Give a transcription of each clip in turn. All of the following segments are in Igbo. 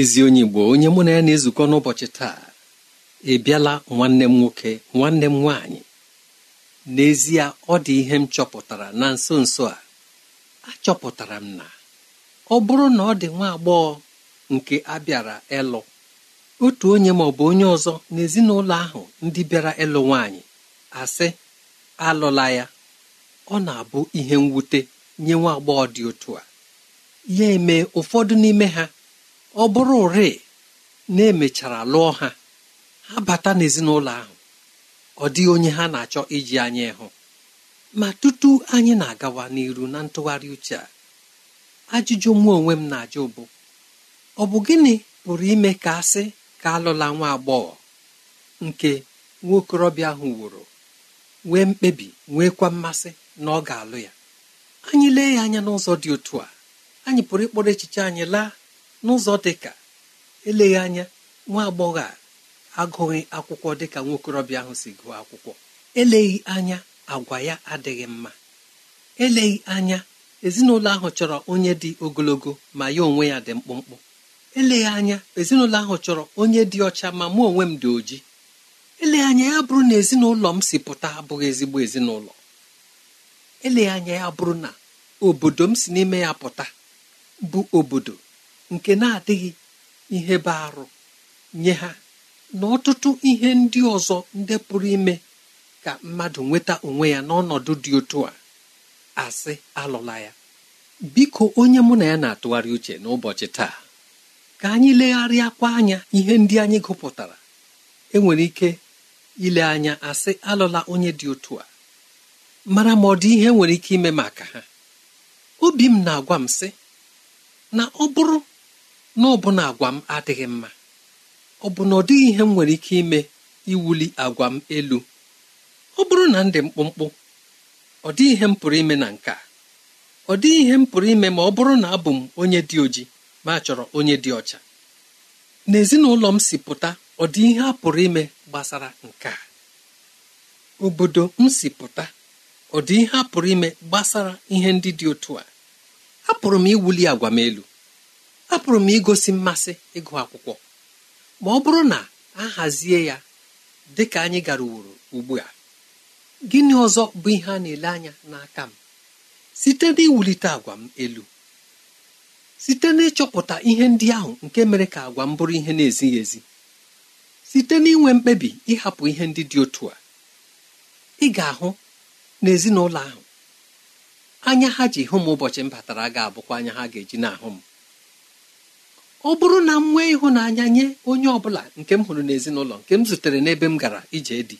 ezi onye Igbo onye mụ na ya na-ezukọ n'ụbọchị taa ịbịala nwanne m nwoke nwanne m nwaanyị n'ezie ọ dị ihe m chọpụtara na nso nso a achọpụtara m na ọ bụrụ na ọ dị nwa agbọghọ nke abịara ịlụ otu onye ma ọ bụ onye ọzọ n'ezinụlọ ahụ ndị bịara ịlụ nwaanyị asị alụla ya ọ na-abụ ihe mwute nye nwa agbọghọ dị otu a ya eme ụfọdụ n'ime ha ọ bụrụ ụrị na emechara lụọ ha ha bata n'ezinụlọ ahụ ọ dịghị onye ha na-achọ iji anyị ịhụ ma tutu anyị na-agawa n'iru na ntụgharị uche a ajụjụ mụ onwe m na-ajụ bụ ọ bụ gịnị pụrụ ime ka asị ka alụla nwa agbọghọ nke nwaokorobịa ahụ wụrụ nwee mkpebi nweekwa mmasị na ọ ga-alụ ya anyị lee ya anya n'ụzọ dị otu a anyị pụrụ ịkpọrọ echiche anyị laa n'ụzọ dị ka eleghị anya nwa agbọghọ a agụghị akwụkwọ dịka nwokorobịa ahụ si gụọ akwụkwọ eleghị anya agwa ya adịghị mma eleghị anya ezinụlọ ahụ chọrọ onye dị ogologo ma ya onwe ya dị mkpụmkpụ eleghị anya ezinụlọ ahụ chọrọ onye dị ọcha ma mụ onwe m dị oji eleghị anya ya bụrụ na ezinụlọ m si pụta abụghị ezigbo ezinụlọ eleghị anya ya bụrụ na obodo m si n'ime ya pụta bụ obodo nke na-adịghị ihe bụ arụ nye ha na ọtụtụ ihe ndị ọzọ ndị pụrụ ime ka mmadụ nweta onwe ya n'ọnọdụ dị otu a asị alụla ya biko onye mụ na ya na-atụgharị uche n'ụbọchị taa ka anyị legharịa legharịakwa anya ihe ndị anyị gụpụtara enwere ike ile anya asị alụla onye dị otu a mara ma ọ dị ihe nwere ike ime maka ha obi m na-agwa m sị na ọ bụrụ N'ọbụna agwa m adịghị mma ọ bụ na ọ dịghị ihe m nwere ike ime iwuli agwa m elu ọ bụrụ na ndị mkpụmkpụ ọ dịghị ihe m pụrụ ime na nke a ọ dịghị ihe m pụrụ ime ma ọ bụrụ na abụ m onye dị oji ma chọrọ onye dị ọcha n'ezinụlọ m si pụta ọ dị ihe a pụrụ ime gbasara nke a obodo m si pụta ọ dị ihe a pụrụ ime gbasara ihe ndị dị otu a apụrụ m iwuli agwa m elu apụrụ m igosi mmasị ịgụ akwụkwọ ma ọ bụrụ na a hazie ya dị ka anyị gara uworo ugbu a gịnị ọzọ bụ ihe a na-ele anya n'aka m site n'iwulite agwa m elu site n'ịchọpụta ihe ndị ahụ nke mere ka agwa m bụrụ ihe na-ezighị ezi site n'inwe mkpebi ịhapụ ihe ndị dị otu a ị ga-ahụ n'ezinụlọ ahụ anya ha ji hụ m ụbọchị m batara ga-abụkwa anya ha ga-eji na-ahụ m ọ bụrụ na m nwee ịhụnanya nye onye ọ bụla nke m hụrụ n'ezinụlọ nke m zutere n'ebe m gara ije dị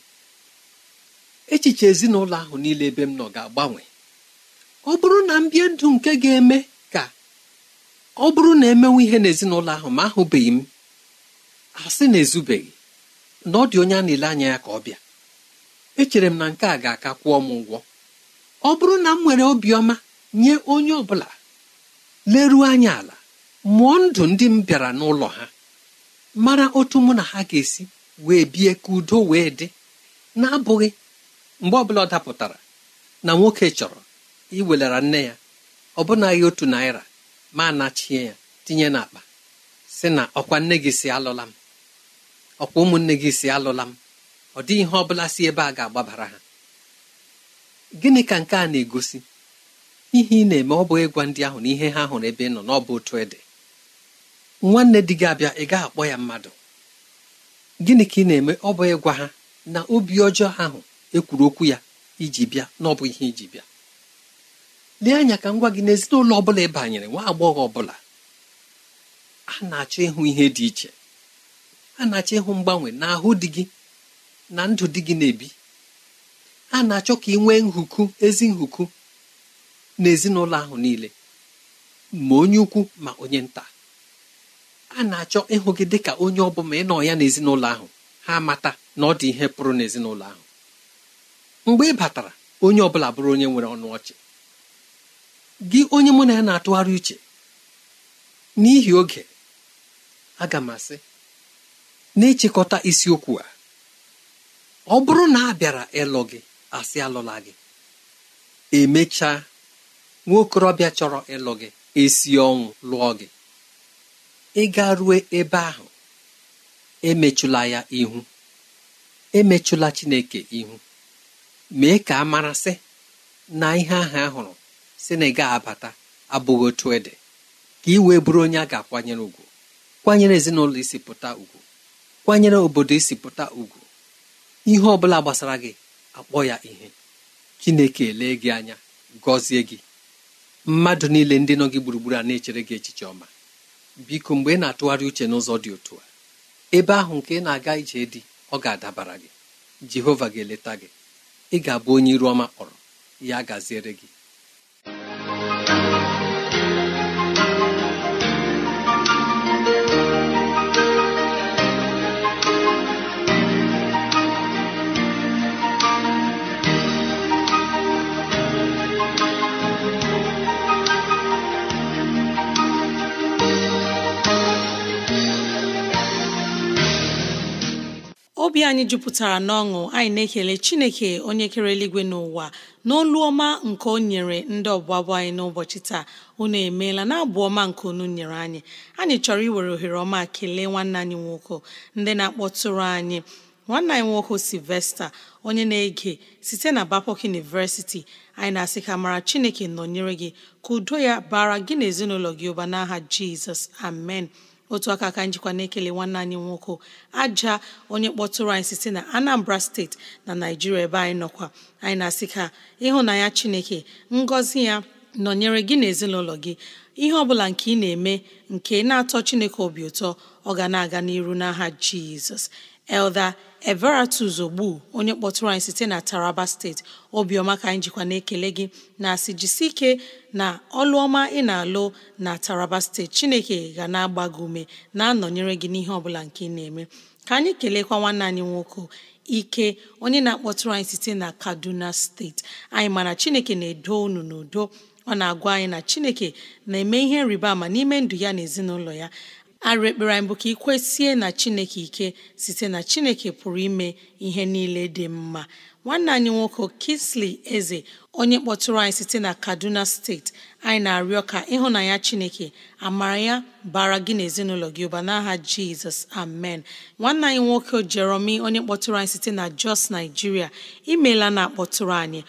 echiche ezinụlọ ahụ niile ebe m nọ ga-agbanwe ọ bụrụ na m bie ndụ nke ga-eme ka ọ bụrụ na emenwe ihe n'ezinụlọ ahụ ma ahụbeghị m asị na ezubeghị na ọ dị onye a na-ele anya ya ka ọ bịa echere m na nke a ga-aka kwụọ m ụgwọ ọ bụrụ na m nwere obiọma nye onye ọ bụla leruo anya ala mụọ ndụ ndị m bịara n'ụlọ ha mara otu mụ na ha ga-esi wee bie ka udo wee dị na-abụghị mgbe ọbụla ọ dapụtara na nwoke chọrọ iwelara nne ya ọbụnaghị otu naira ma nachie ya tinye n'akpa si na ọkwa nne gị si alụla m ọkwa ụmụnne gị si alụla m ọ dịghị ihe ọ bụla si ebe a ga-agbabara ha gịnị ka nke a na-egosi ihe ị na-eme ọ bụghị ịgwa ndị ahụ na ihe ha hụrụ ebe ị nọ n'ọbụ otu ịdị nwanne di gị abịa ị gaghị akpọ ya mmadụ gịnị ka ị na-eme ọ bụ ịgwa ha na obi ọjọọ ahụ ekwuru okwu ya iji bịa na ọ bụ ihe iji bịa lee anya ka m gwa gị n'ezinụlọ ọ bụla ị banyere nwa agbọghọ ọbụla a na-achọ ịhụ ihe dị iche a na-achọ ịhụ mgbanwe n'ahụ di gị na ndụ di gị na-ebi a na-achọ ka ị nwee nhuku ezi nhuku n'ezinụlọ ahụ niile ma onye ukwu ma onye nta a na-achọ ịhụ gị dị ka onye ọ ị nọ ya n'ezinụlọ ahụ ha amata na ọ dị ihe pụrụ n'ezinụlọ ahụ mgbe ị batara onye ọbụla bụrụ onye nwere ọnụ ọchị gị onye mụ na ya na-atụgharị uche n'ihi oge aga m asị na-echekọta isiokwu a ọ bụrụ na a bịara ịlụ gị asị alụla gị emechaa nwa okorobịa chọrọ ịlụ gị esi ọnwụ lụọ gị Ị ịga rue ebe ahụ emechụla ya ihu emechụla chineke ihu mee ka a marasị na ihe ahụ a hụrụ si na ị abata abụghị otu ede ka ị wee bụrụ onye a ga-akwanyere ugwu kwanyere ezinụlọ isi pụta ugwu kwanyere obodo isi pụta ugwu ihe ọ bụla gbasara gị akpọ ya ihe chineke elee gị anya gọzie gị mmadụ niile ndị nọ gị gburugburu a na-echere gị echiche ọma biko mgbe ị na-atụgharị uche n'ụzọ dị otu a ebe ahụ nke ị na-aga ije dị ọ ga-adabara gị jehova ga-eleta gị ị ga-abụ onye iru ọma kpọrọ ya gaziere gị obi anyị jupụtara n'ọṅụ anyị na-ekele chineke onye kere eluigwe n'ụwa n'olu ọma nke o nyere ndị ọbụbụ anyị n'ụbọchị taa unu emeela na abụ ọma nke unu nyere anyị anyị chọrọ iwere ohere ọma kelee nwanne anyị nwoke ndị na-akpọtụrụ anyị nwanne anyị nwoke Sylvester onye na-ege site na bapok universiti anyị na-asị ka mara chineke nọnyere gị ka udo ya bara gị na ezinụlọ gị ụba n'aha jizọs amen otu aka aka njikwa na-ekele nwanne anyị nwoke aja onye kpọtụrụ anyị site na Anambra steeti na Naijiria ebe anyị nọkwa anyị na-asị ka ịhụnanya Chineke ngọzi ya nọnyere gị na ezinụlọ gị ihe ọ bụla nke ị na-eme nke na-atọ Chineke obi ụtọ ọ ga na-aga n'iru n'aha Jizọs elda Everatus Ogbu onye kpọtụrụ anyị site na Taraba steeti obiọma ka anyị jikwa na-ekele gị na-asị jisi ike na ọlụọma ị na-alụ na Taraba steeti Chineke ga na-agba gị ume na-anọnyere gị n'ihe ọbụla nke ị na-eme ka anyị kelekwa nwanne anyị nwoke ike onye na-akpọtụrụ anyị site na Kaduna steeti anyị mana Chineke na-edo unu n'udo ọ na-agwa anyị na Chineke na-eme ihe rịba ama n'ime ndụ ya na ezinụlọ ya arụ ekpere anyị bụ ka ị kwesie na chineke ike site na chineke pụrụ ime ihe niile dị mma nwanne anyị nwoke Kingsley eze onye kpọtụrụ anyị site na Kaduna steeti anyị na-arịọ ka ya chineke amara ya bara gị na gị ụba n'aha jizọs amen nwanne anyị nwoke jeromi onye kpọtụrụ anyị site na Jos naijiria imeela na akpọtụrụ anyị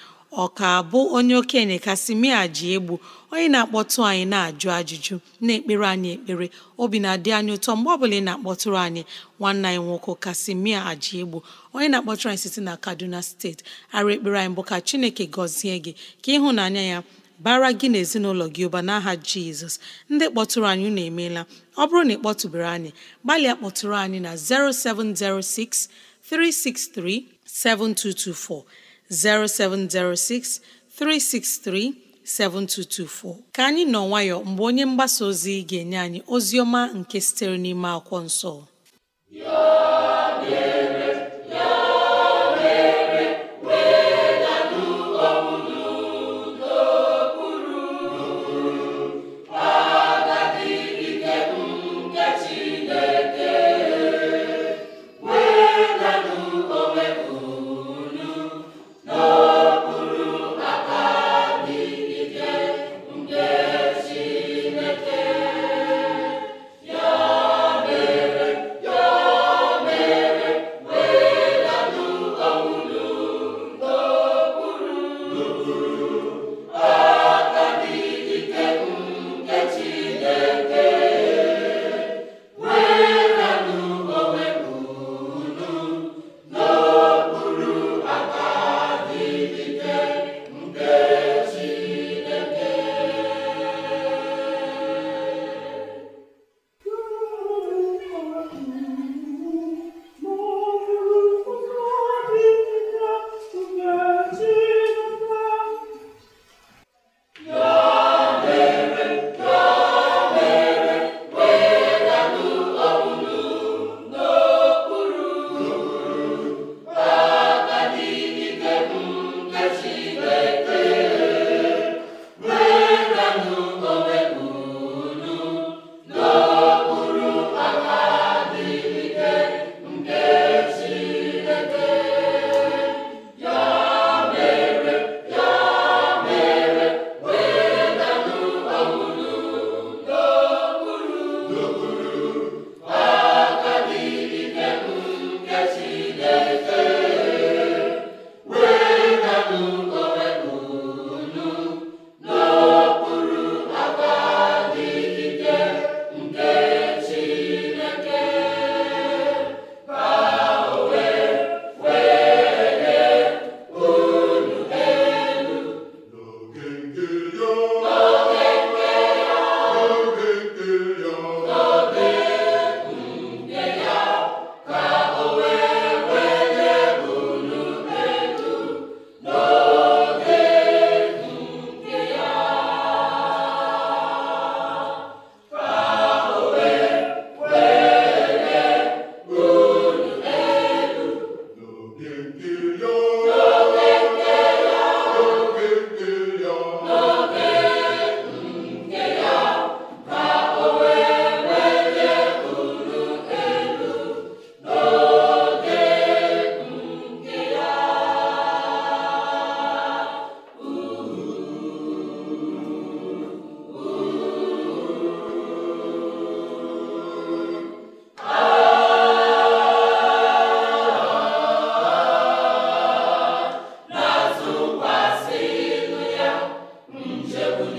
ọ ka bụ onye okenye kasịmia ji egbu onye na-akpọtụ anyị na-ajụ ajụjụ na-ekpere anyị ekpere obi na-adị anyị ụtọ mgbe ọ bụla ị na-akpọtụrụ anyị nwanne anyị nwoke kasimia aji egbu onye na-akpọtụrụ anyị site na kaduna steeti arụ ekpere anyị bụ ka chineke gọzie gị ka ịhụnanya ya bara gị na ezinụlọ gị ụba n'aha jizọs ndị kpọtụrụ anyị unu emeela ọ bụrụ na ị kpọtụbere anyị gbalịa kpọtụrụ anyị na 0706 7224 0706 363 7224. ka anyị nọ nwayọọ mgbe onye mgbasa ozi ga-enye anyị ozi ọma nke sitere n'ime akwụkwọ nsọ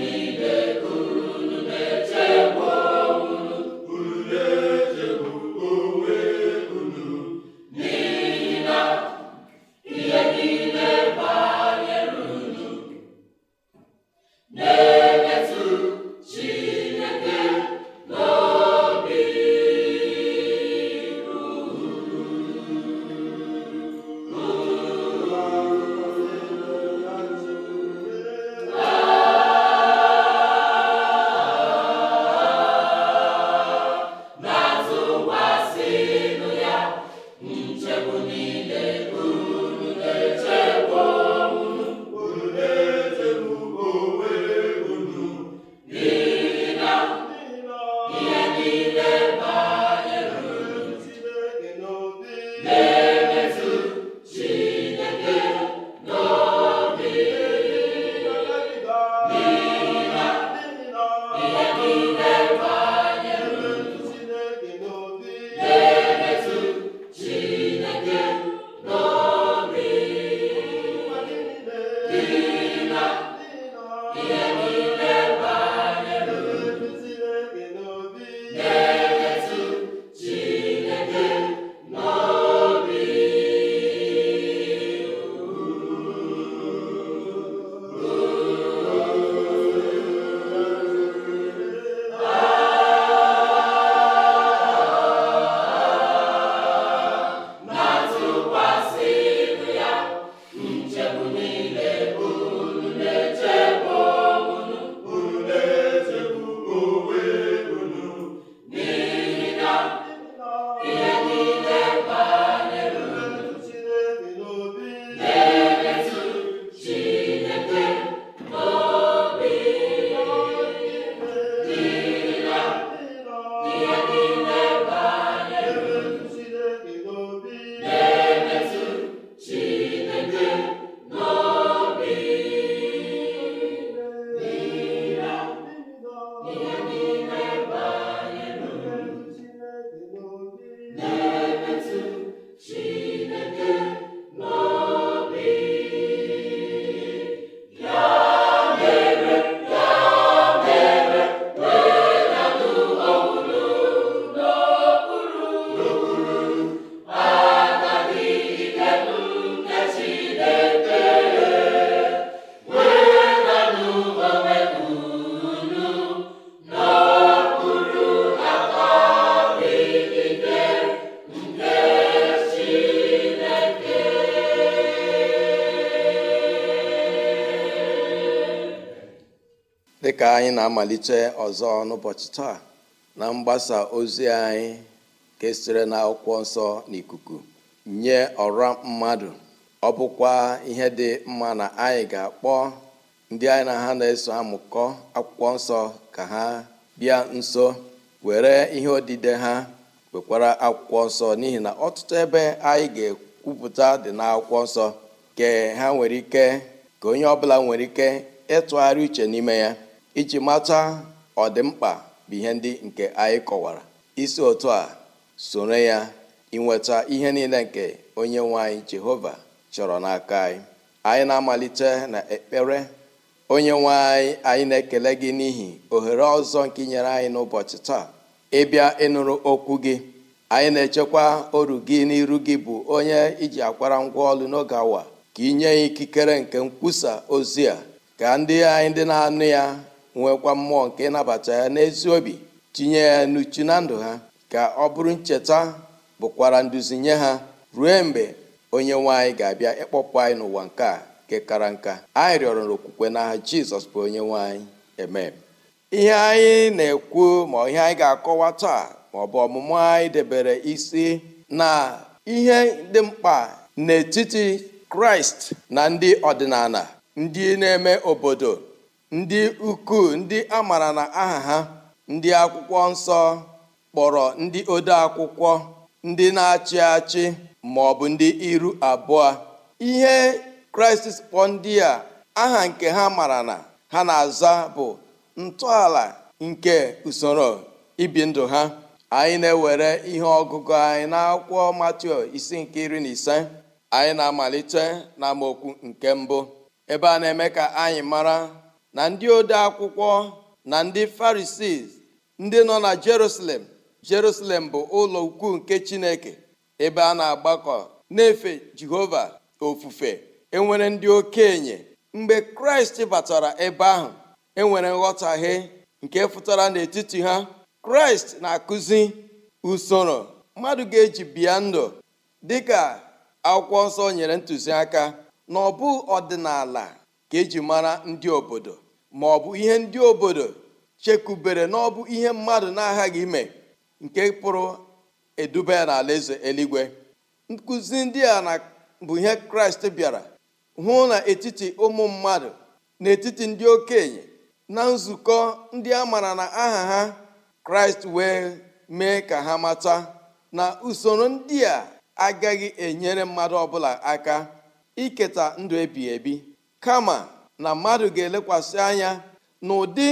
Amen. anyị na-amalite ọzọ n'ụbọchị taa na mgbasa ozi anyị kesịrị sitere na akwụkwọ nsọ n'ikuku nye ọra mmadụ ọ bụkwa ihe dị mma na anyị ga-akpọ ndị anyị na ha na-eso amụkọ akwụkwọ nsọ ka ha bịa nso were ihe odide ha wekwara akwụkwọ nsọ n'ihi na ọtụtụ ebe anyị ga-ekwupụta dị n'akwụkwọ nsọ ha nwere ike ka onye ọbụla nwere ike ịtụgharị uche n'ime ya iji mata ọdịmkpa bụ ihe ndị nke anyị kọwara isi otu a soro ya inweta ihe niile nke onye nwe anyị jehova chọrọ n'aka anyị anyị na-amalite na ekpere onye nwe anyị anyị na-ekele gị n'ihi ohere ọzọ nke nyere anyị n'ụbọchị taa ịbịa ịnụrụ okwu gị anyị na-echekwa oru gị n'iru gị bụ onye iji akwara ngwa ọlụ n'oge awa ka inye ya ikikere nke nkwusa ozi a ka ndị anyị ndị na-anụ ya nwekwa mmụọ nke ịnabata ya n'ezi obi tinye ya n'uchu na ndụ ha ka ọ bụrụ ncheta bụkwara nduzi nye ha ruo mgbe onye nwanyị ga-abịa ịkpọpụ anyị n'ụwa nke a nke kara nka anyị rịọrọ okwukwe n'aha jizọs bụ onye nwanyị eme ihe anyị na-ekwu ma ihe anyị ga-akọwa taa ma ọ bụ ọmụmụ anyị debere isi na ihe dị mkpa n'etiti kraịst na ndị ọdịnala ndị na-eme obodo ndị ukwuu ndị a maara na aha ha ndị akwụkwọ nsọ kpọrọ ndị ode akwụkwọ ndị na-achị achị ma ọ bụ ndị iru abụọ ihe kraịst kpọ ndị a aha nke ha mara na ha na-aza bụ ntọala nke usoro ibi ndụ ha anyị na-ewere ihe ọgụgụ anyị na akwụkwọ Matiu isi nke iri na ise anyị na-amalite na nke mbụ ebe a na-eme ka anyị mara na ndị ode akwụkwọ na ndị farisii ndị nọ na jerusalem jerusalem bụ ụlọ ukwu nke chineke ebe a na-agbakọ na-efe jehova ofufe enwere ndị okenye mgbe kraịst batara ebe ahụ enwere nghọtahie nke fụtara n'etiti ha kraịst na-akụzi usoro mmadụ ga-eji bịa ndụ dị ka akwụkwọ nsọ nyere ntụziaka na ọ ọdịnala ka eji mara ndị obodo ma ọ bụ ihe ndị obodo chekubere na ọ bụ ihe mmadụ na-aghaghị ime nke pụrụ eduba ya n'ala eze eluigwe nkụzi ndị a na bụ ihe kraịst bịara hụ n'etiti ụmụ mmadụ n'etiti ndị okenye na nzukọ ndị a mara na aha ha kraịst wee mee ka ha mata na usoro ndị a agaghị enyere mmadụ ọbụla aka iketa ndụ ebighị ebi kama na mmadụ ga-elekwasị anya na ụdị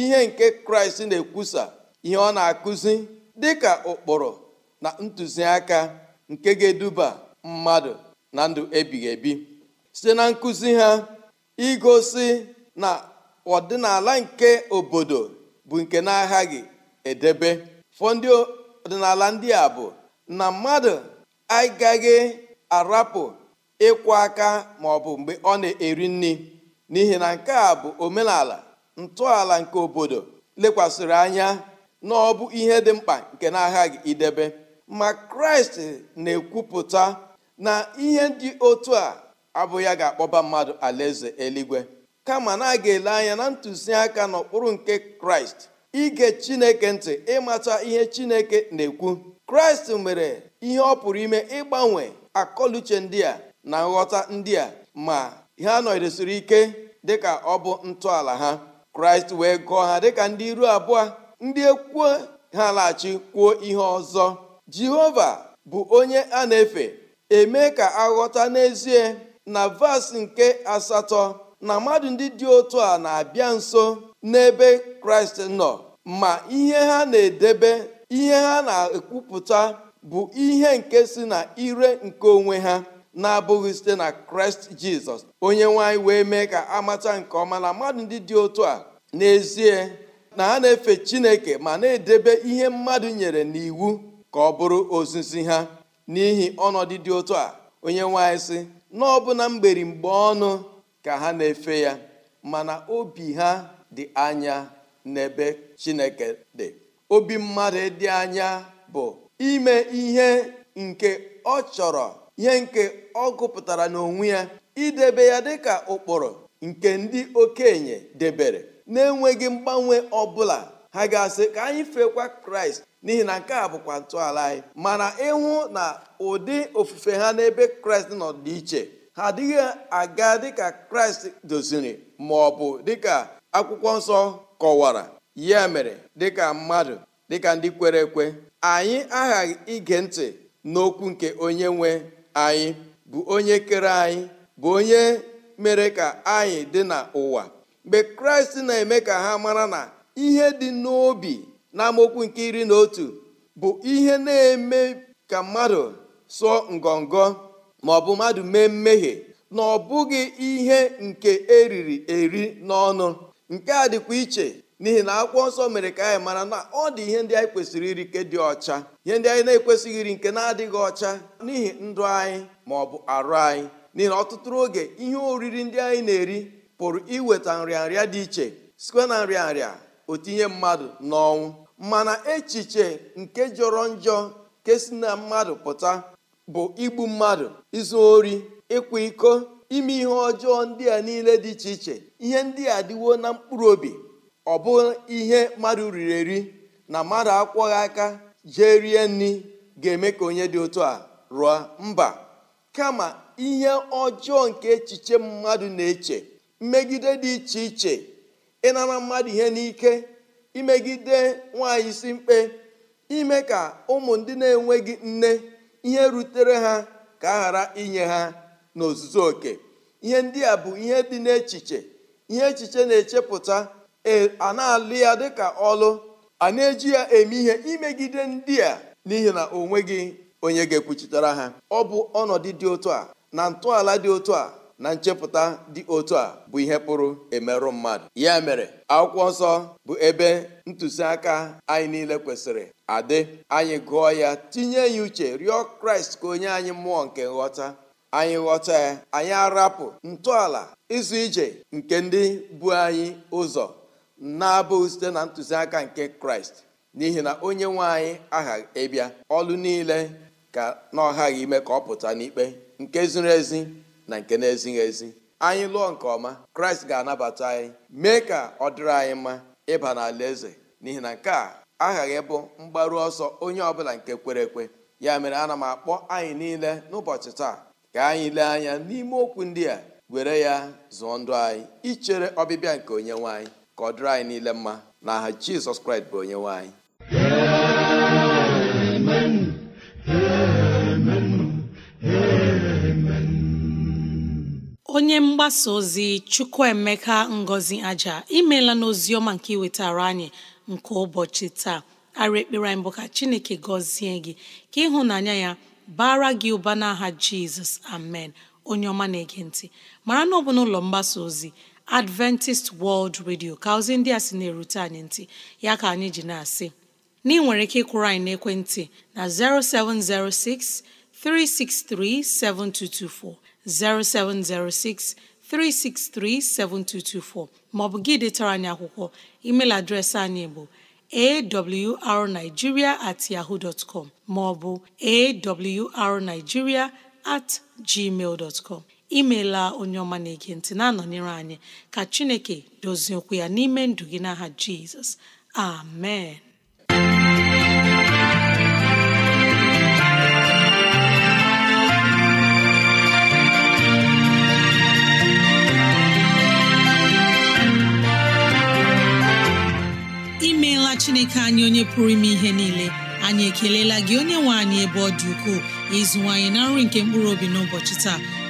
ihe nke kraịst na-ekwusa ihe ọ na-akụzi dịka ụkpụrụ na ntụziaka nke ga-eduba mmadụ na ndụ ebighị ebi site na nkụzi ha igosi na ọdịnala nke obodo bụ nke na-aghaghị edebe ndị ọdịnala ndị a bụ na mmadụ agaghị arapụ ịkwụ aka ma ọ bụ mgbe ọ na-eri nri n'ihi na nke a bụ omenala ntọala nke obodo lekwasịrị anya na ọ bụ ihe dị mkpa nke na agha gị idebe ma kraịst na-ekwupụta na ihe dị otu a abụ ya ga-akpọba mmadụ alaeze eluigwe kama na a ga-ele anya na ntụziaka n'okpuru nke kraịst ige chineke ntị ịmata ihe chineke na-ekwu kraịst mere ihe ọ pụrụ ime ịgbanwe akọluche ndị a na nghọta ndị a ma ha nọdesiri ike dịka ọ bụ ntọala ha kraịst wee gụọ ha dịka ndị iru abụọ ndị ekwuo ha laghachi kwuo ihe ọzọ jehova bụ onye a na-efe eme ka aghọta n'ezie na vaasị nke asatọ na mmadụ ndị dị otu a na-abịa nso n'ebe kraịst nọ ma ihe ha na-edebe ihe ha na-ekwupụta bụ ihe nke si na ire nke onwe ha na-abụghị site na kraịst jizọs onye nwanyị wee mee ka amata nke ọma na mmadụ ndị dị otu a n'ezie na ha na-efe chineke ma na-edebe ihe mmadụ nyere n'iwu ka ọ bụrụ ozizi ha n'ihi ọnọdụ dị otu a onye nwanyị sị na ọbụna mgbe ọnụ ka ha na-efe ya mana obi ha dị anya n'ebe chineke dị obi mmadụ dị anya bụ ime ihe nke ọ chọrọ ihe nke ọ gụpụtara n'onwe ya idebe ya dịka ụkpụrụ nke ndị okenye debere na-enweghị mgbanwe ọbụla ha ga-asị ka anyị fekwa kraịst n'ihi na nke a bụkwa ntọala anyị mana ịhụ na ụdị ofufe ha n'ebe kraịst nọ dị iche ha adịghị aga dịka kraịst doziri ma ọ bụ dịka akwụkwọ nsọ kọwara ya mere dịka mmadụ dịka ndị kwere ekwe anyị aghaghị ige ntị n'okwu nke onye nwe anyị bụ onye kere anyị bụ onye mere ka anyị dị n'ụwa mgbe kraịst na-eme ka ha mara na ihe dị n'obi na amokwu nke iri na otu bụ ihe na-eme ka mmadụ sụọ ngọngọ ma ọ bụ mmadụ mee mmehie na ọ bụghị ihe nke eriri eri n'ọnụ nke a dịkwa iche n'ihi na akwụkwọ nsọ mere ka anyị mara na ọ dị ihe ndị anyị kwesịrị iri nke dị ọcha ihe ndị anyị na-ekwesịghị iri nke na-adịghị ọcha n'ihi ndụ anyị ma ọ bụ arụ anyị n'ihi na ọtụtụ oge ihe oriri ndị anyị na-eri pụrụ iweta nrịanrịa dị iche sikwe na nrịanrịa otinye mmadụ n'ọnwụ mana echiche nke jọrọ njọ nke si na mmadụ pụta bụ igbu mmadụ izu ori ịkwa iko ime ihe ọjọọ ndị a niile dị iche iche ihe ndị a dịwo na mkpụrụ obi ọ bụ ihe mmadụ riri eri na mmadụ akwọghị aka jee rie nri ga-eme ka onye dị otu a rụọ mba kama ihe ọjọọ nke echiche mmadụ na-eche mmegide dị iche iche ịnara mmadụ ihe n'ike imegide nwaanyị si mkpe ime ka ụmụ ndị na-enweghị nne ihe rutere ha ka a ghara inye ha n'ozuzu oke ihe ndị a bụ ihe dị n'echiche ihe echiche na-echepụta E, a na-alụ ya dịka ọlụ a na-eji ya eme ihe imegide ndị a n'ihi na o nweghị onye ga-ekwuchitere ha ọ bụ ọnọdụ dị otu a na ntọala dị otu a na nchepụta dị otu a bụ ihe pụrụ emerụ mmadụ ya mere akwụkwọ nsọ bụ ebe ntụziaka anyị niile kwesịrị adị anyị gụọ ya tinye ya uche rịọ kraịst ka onye anyị mmụọ nke nghọta anyị ghọta ya anyị arapụ ntọala ịzụ ije nke ndị bu anyị ụzọ na-abụghị site na ntụziaka nke kraịst n'ihi na onye nwanyị agha aghaghị ịbịa ọlụ niile ka na ọghaghị ime ka ọ pụta n'ikpe nke ziri ezi na nke na-ezighị ezi anyị lụọ nke ọma kraịst ga-anabata anyị mee ka ọ dịrị anyị mma ịba n'ala eze n'ihi na nke a aghaghị bụ mgbaru ọsọ onye ọbụla nke kwere ekwe ya mere ana m akpọ anyị niile n'ụbọchị taa ka anyị lee anya n'ime okwu ndị a were ya zụọ ndụ anyị ichere ọbịbịa nke onye nwanyị. ka ọ dịrị anyị niile mma na aha jizọs kraịst bụ onye nwanyị onye mgbasa ozi chukwuemeka ngozi aja imela n'ozi ọma nke iwetara anyị nke ụbọchị taa arị ekpere anyị bụ ka chineke gọzie gị ka ịhụnanya ya bara gị ụba n'aha jizọs amen onye ọma na-ege ntị mara na ọ bụ n'ụlọ mgbasa ozi Adventist World Radio ka ozi ndị a sị na-erute anyị ntị ya ka anyị ji na-asị na nwere ike ịkwụrụ anyị n'ekwentị na 0706 363 7224 0706 363 7224 maọbụ gị detara anyị akwụkwọ email adreesị anyị bụ arigiria at yahoo bụ maọbụ at gmail imeela onye ọma na-ege ntị na-anọnyere anyị ka Chineke dozie okwu ya n'ime ndụ gị n'aha Jizọs amen imeela Chineke anyị onye pụrụ ime ihe niile anyị ekelela gị onye nwe anyị ebe ọ dị ukwuu ịzụwanyị na nri nke mkpụrụ obi n'ụbọchị taa